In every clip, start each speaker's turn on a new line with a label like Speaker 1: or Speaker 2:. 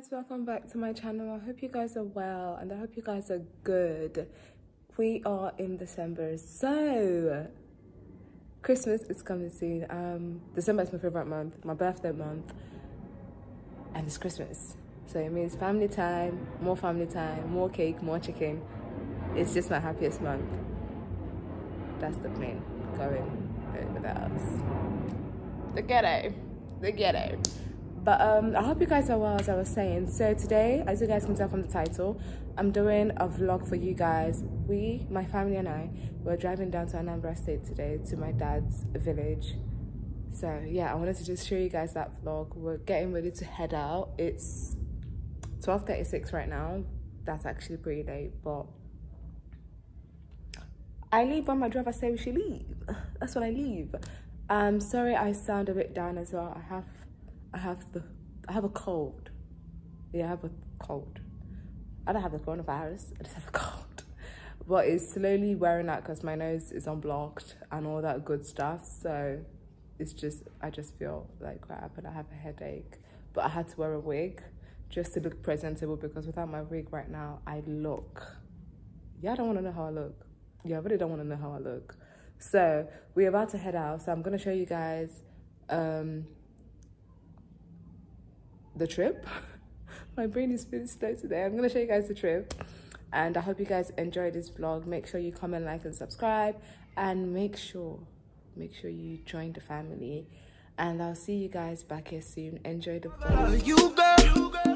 Speaker 1: guys welcome back to my channel i hope you guys are well and i hope you guys are good we are in december so christmas is coming soon um december is my favorite month my birthday month and it's christmas so it means family time more family time more cake more chicken it's just my happiest month that's the plan going over the house the ghetto the ghetto but um, i hope you guys are well as i was saying so today as you guys can tell from the title i'm doing a vlog for you guys we my family and i were driving down to anambra state today to my dad's village so yeah i wanted to just show you guys that vlog we're getting ready to head out it's 12:36 right now that's actually pretty late but i leave when my driver says we should leave that's when i leave i um sorry i sound a bit down as well i have I have the I have a cold. Yeah, I have a cold. I don't have the coronavirus. I just have a cold. But it's slowly wearing out because my nose is unblocked and all that good stuff. So it's just I just feel like crap and I have a headache. But I had to wear a wig just to look presentable because without my wig right now, I look. Yeah, I don't want to know how I look. Yeah, I really don't want to know how I look. So we're about to head out. So I'm going to show you guys um, the trip. My brain is feeling slow today. I'm gonna show you guys the trip. And I hope you guys enjoy this vlog. Make sure you comment, like, and subscribe. And make sure, make sure you join the family. And I'll see you guys back here soon. Enjoy the vlog.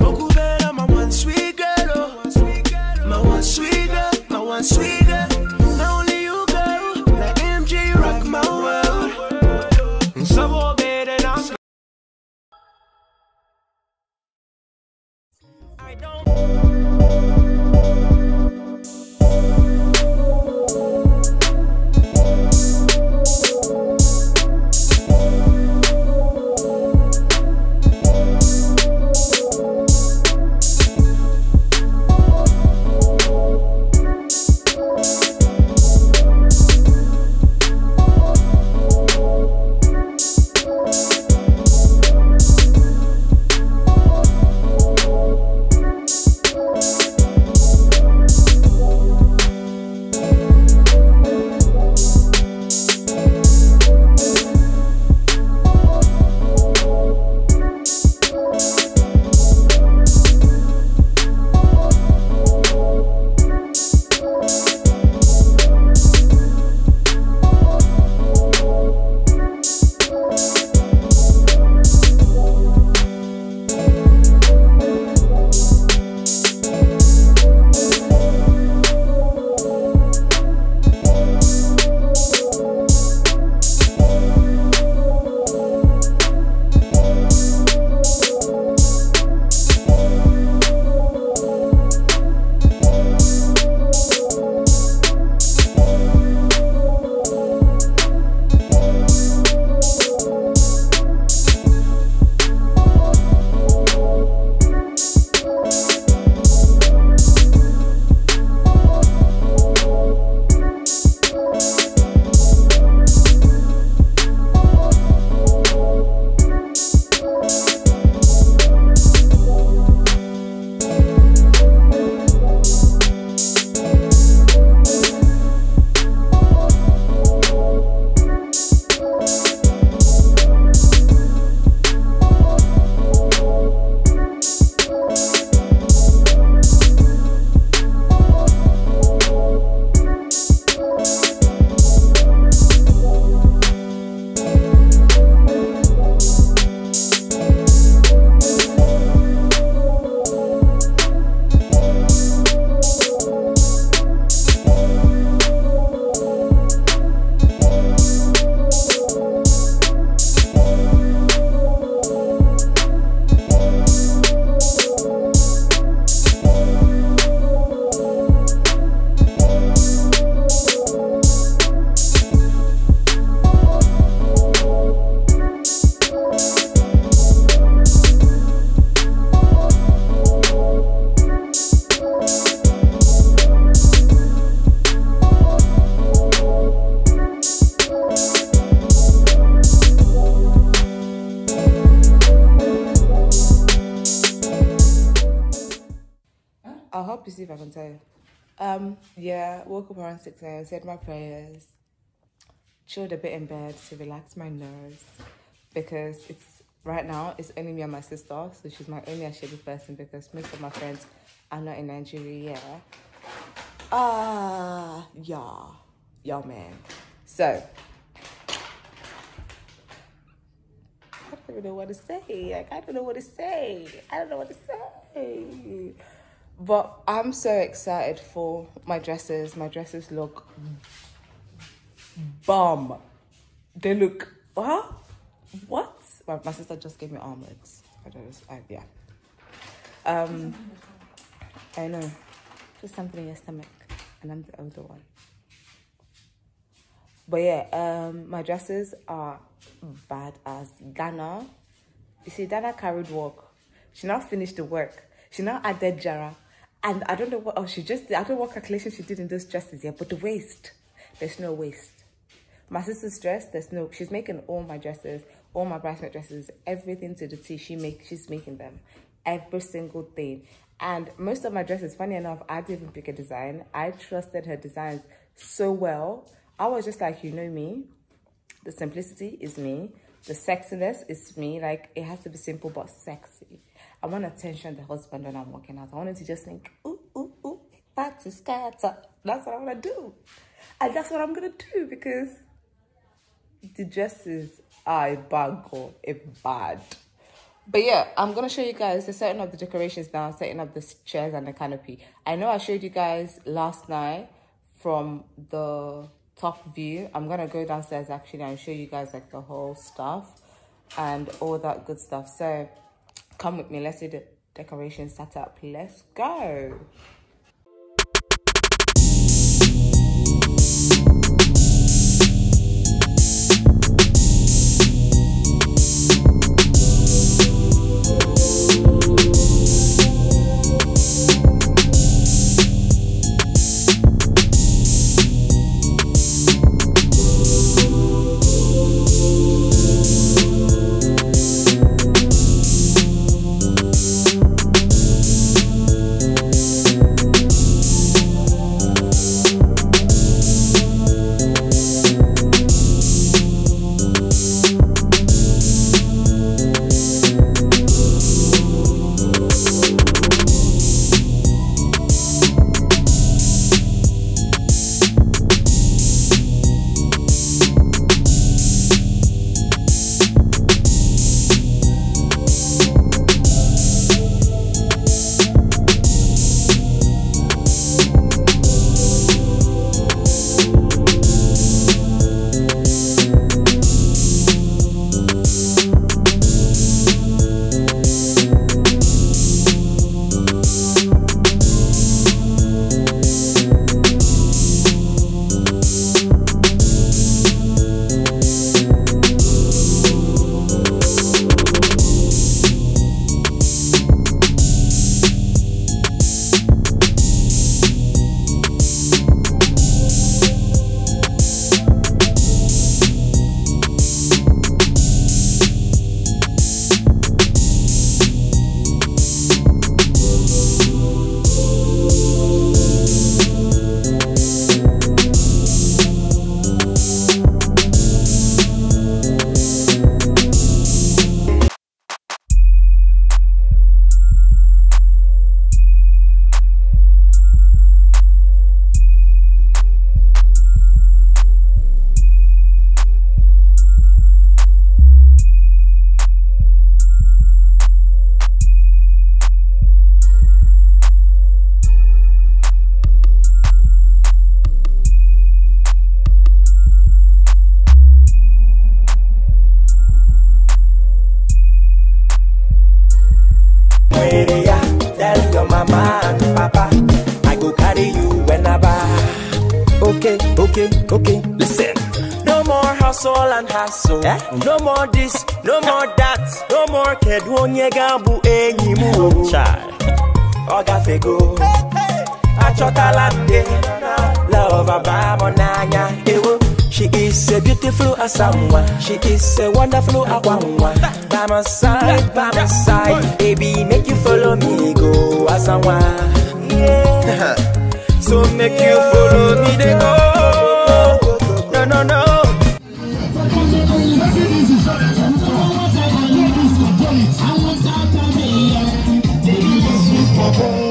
Speaker 2: Oh. my one sweet girl, my one sweet girl, my one sweet girl. I don't
Speaker 1: yeah, woke up around 6 a.m., said my prayers, chilled a bit in bed to relax my nerves because it's right now it's only me and my sister, so she's my only actually person because most of my friends are not in Nigeria. Ah, uh, yeah, yeah, man. So, I don't know what to say. Like, I don't know what to say. I don't know what to say. But I'm so excited for my dresses. My dresses look bomb. They look, huh? What? My, my sister just gave me armlets. I don't know, yeah. Um, I know. Just something in your stomach. And I'm the older one. But yeah, um, my dresses are bad as Ghana. You see, Dana carried work. She now finished the work she now added Jara. And I don't know what else oh, she just did. I don't know what calculation she did in those dresses yet, but the waist, there's no waist. My sister's dress, there's no, she's making all my dresses, all my bridesmaid dresses, everything to the T. She make, she's making them, every single thing. And most of my dresses, funny enough, I didn't even pick a design. I trusted her designs so well. I was just like, you know me, the simplicity is me, the sexiness is me. Like it has to be simple, but sexy. I want to tension the husband when I'm walking out. I want him to just think, ooh, ooh, ooh, that's a scatter. That's what I want to do. And that's what I'm going to do because the dresses are a or a bad. But yeah, I'm going to show you guys the setting up the decorations now, setting up the chairs and the canopy. I know I showed you guys last night from the top view. I'm going to go downstairs actually and show you guys like the whole stuff and all that good stuff. So Come with me. Let's do the decoration setup. Let's go.
Speaker 3: and hassle. Eh? No more this, no more that, no more kedu onye ga-abụ any more. Child, ọ gafego, achọtala nde, love abụ n'anya ewo. She is a beautiful someone. She is a wonderful akwamwa. By my side, by my side, baby, make you follow me go asamwa. Yeah. so make you follow me they go. No no no.
Speaker 2: trouble.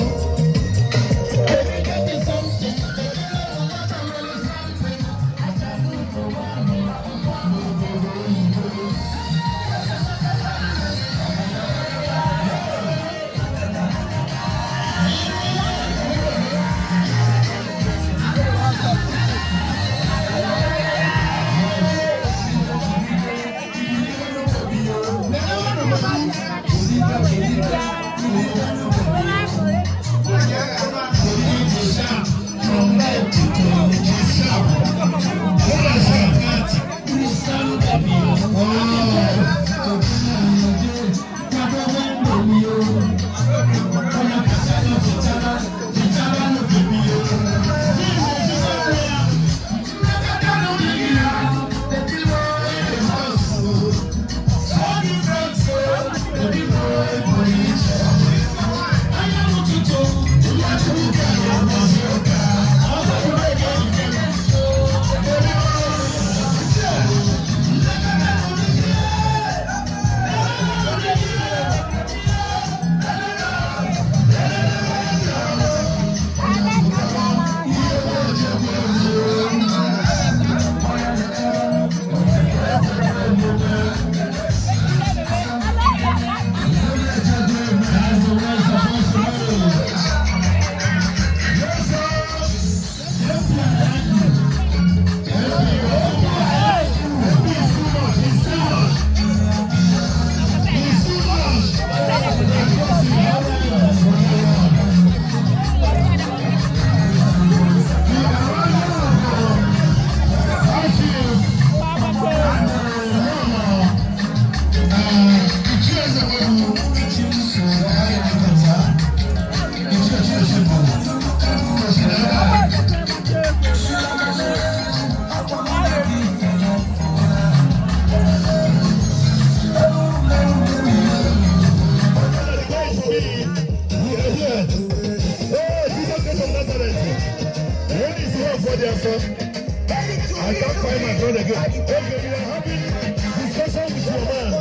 Speaker 2: somebody else I can't find my brother again. Okay, we are having discussion with your man.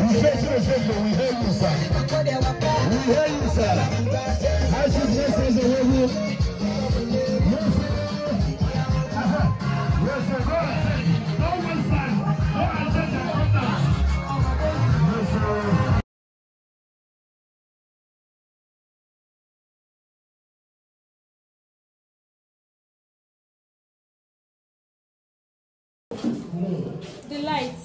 Speaker 2: We face to face, we hear you, sir. We hear you, sir. I should just say the you. Yes, sir. Yes, sir.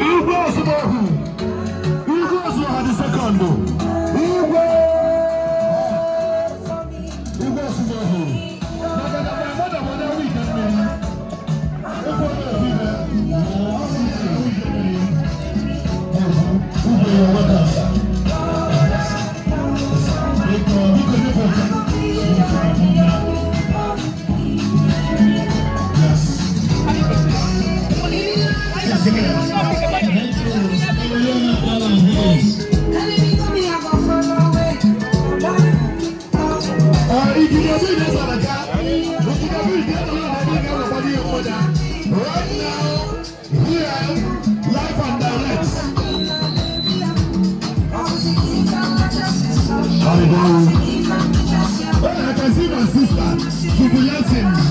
Speaker 2: Impossible!
Speaker 3: right now,
Speaker 2: here, and direct. I can see my sister, Jubilating.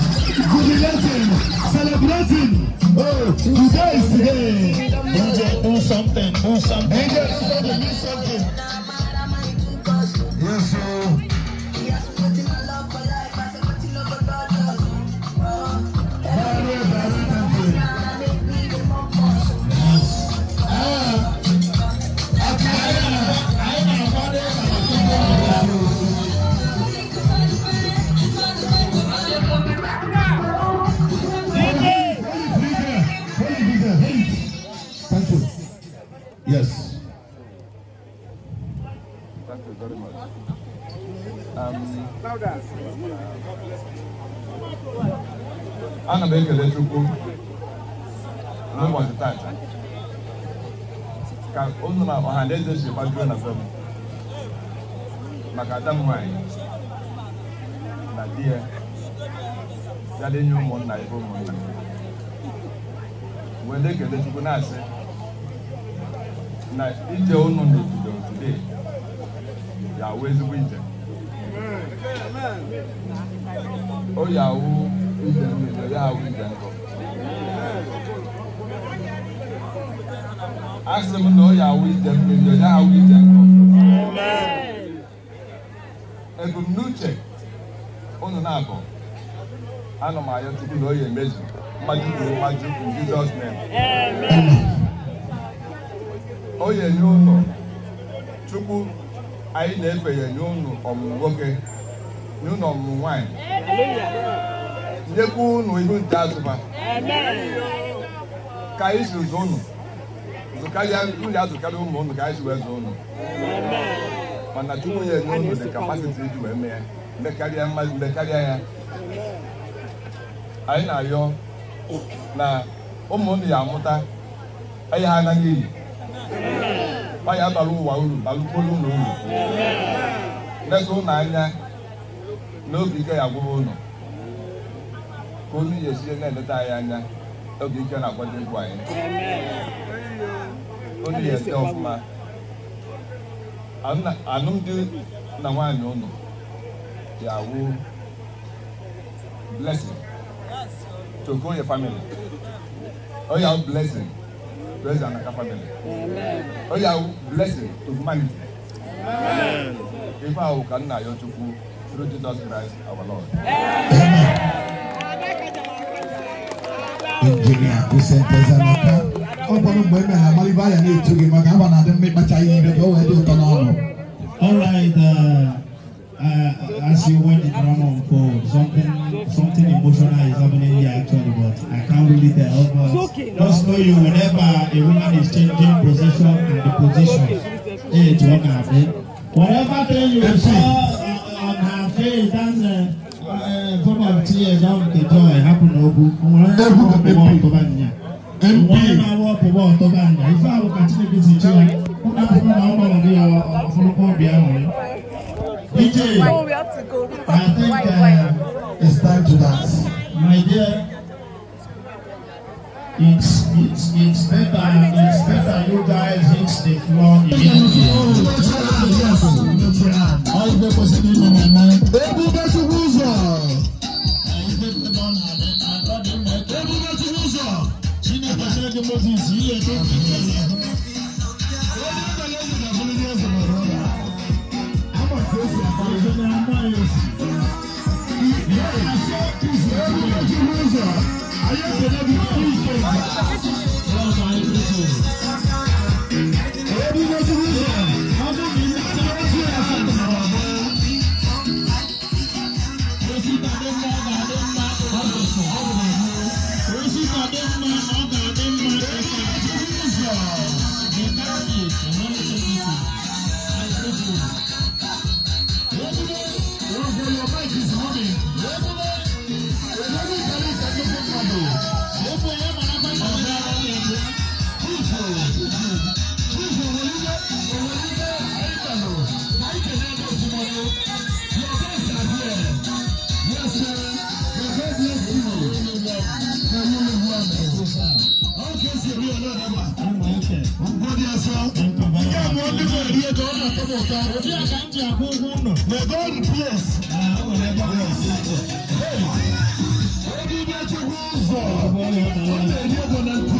Speaker 3: m na-ekele Chukwu n'ụbọchị tata ka ụnụ na ọha na eze si gbajuo na be m maka ada m nwanyị na di ya ya enye nye ụmụnna ebe ụmụnna wee na-ekele Chukwu na-asị na ije ụnụ n'obodo today ya awụ ezigbo ije o ya awụ ije mmiri ya ije asị m na ọ ya awụ ije mmiri ya awụ ije nkọ ebumnuche ụnụ na-abụ ana m anya tupu na ọ ya emezu mmaju kwuru mmaju kwuru jizọs nem o ya enye ụlọ chukwu anyị na-efe ya ọmụ ọmụmụ nwoke nye ọmụ ọmụmụ nwaanyị Yeku unu ihu nte azụba ka anyị siri zụ unu zụkarịa unu ya zụkarịa ụmụ unu ka anyị si wee zụ unu mana Chukwu ya enye unu dị kapasiti iji wee mee mekarịa mmadụ mekarịa ya anyị na-arịọ na ụmụ unu ya amụta anyị ha anaghị eyi ọ ya bara ụwa uru balụkwuru unu uru leta unu anya n'obi ike ya gwụrụ unu ka unu ga-esiri na-eleta anyị anya oge ike na-akwado egwu anyị
Speaker 2: unu ga-ete ọfụma
Speaker 3: alụmdi na nwaanyị ụnụ ga-awụ blessing to grow your family ọ ya blessing praise anaka family ọ ya blessing to humanity ife ahụ ka nna ya chukwu through Jesus Christ our Lord injinia Vicente Zanaka ọ bụrụ mgbe emere amalibe anya na-etu gị maka agba na-adị mma ịkpacha ihe ire ka o wee dị ụtọ n'ọnụ Alright, uh, uh, as you went the drama for uh, something something emotional is happening here actually, but I can't really tell. But just know you, whenever a woman is changing position, and the position, eh, it's what happened. Whatever thing you saw
Speaker 2: on her face, that's
Speaker 3: uh, Combat here now the joy happen ogu. Ebu the MP. MP. One hour per one to Banya. If I will continue this in Chile, who can from now on the hour from the Colombia? DJ,
Speaker 2: I think uh, it's time to dance. My dear, it's it's it's better it's better you guys hit the floor immediately. All the possible moment. ṣe kí moses yìí yẹ tó kí ẹ lọ. wọ́n I am
Speaker 1: lẹ́yìn ìdàgbọ́n ní
Speaker 2: tó Thank you. Jesus.